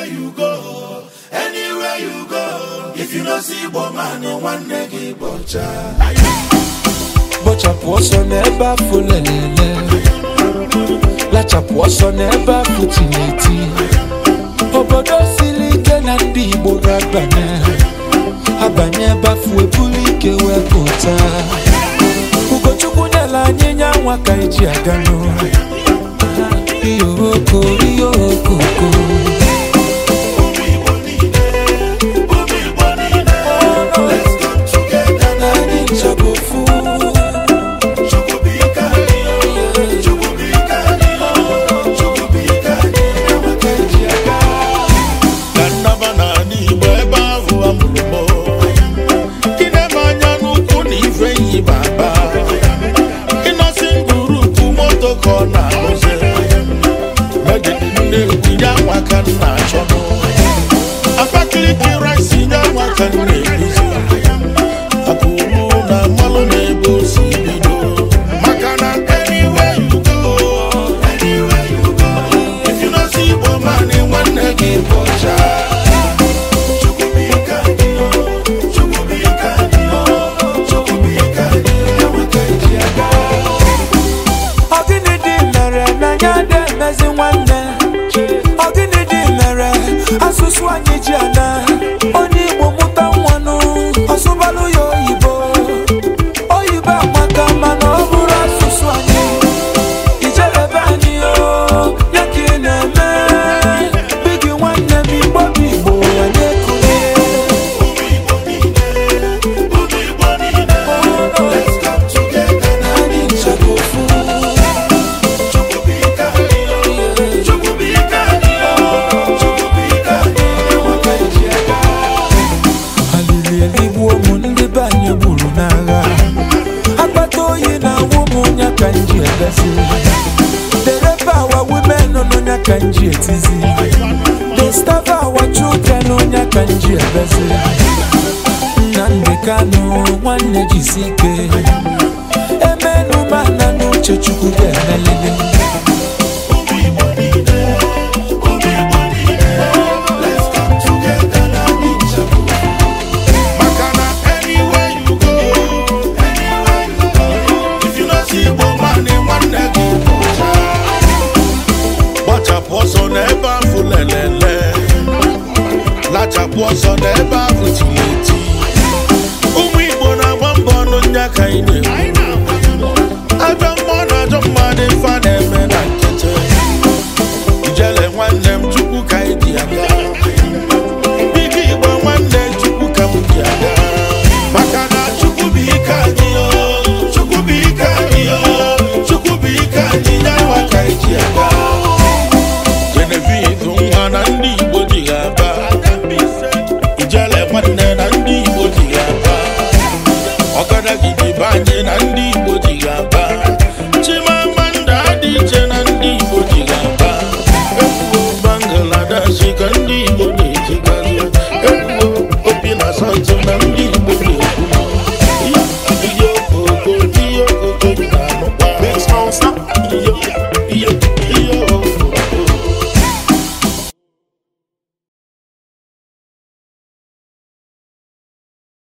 anywhere you go if you no see igbo nwanne gị bọcha bọchapụ ọsọ n'ebe afọ lelele lachapụ ọsọ n'ebe afọ tineti obodo siri ike na ndị igbo ga-abanye abanye ebe afọ eburu ike wee pụta ugochukwu nyela anyị nya ka eji aga n'ụlọ iyo nwata achọ m Abakaliki rice nye nne ezi dereba our women n'onye ka nji etizi disturb our children n'onye ka nji ebezi na ọsọ n'ebe ahụ tiri eti ụmụ Igbo na-agba mbọ ọnụ nya ka anyị na adị na ndị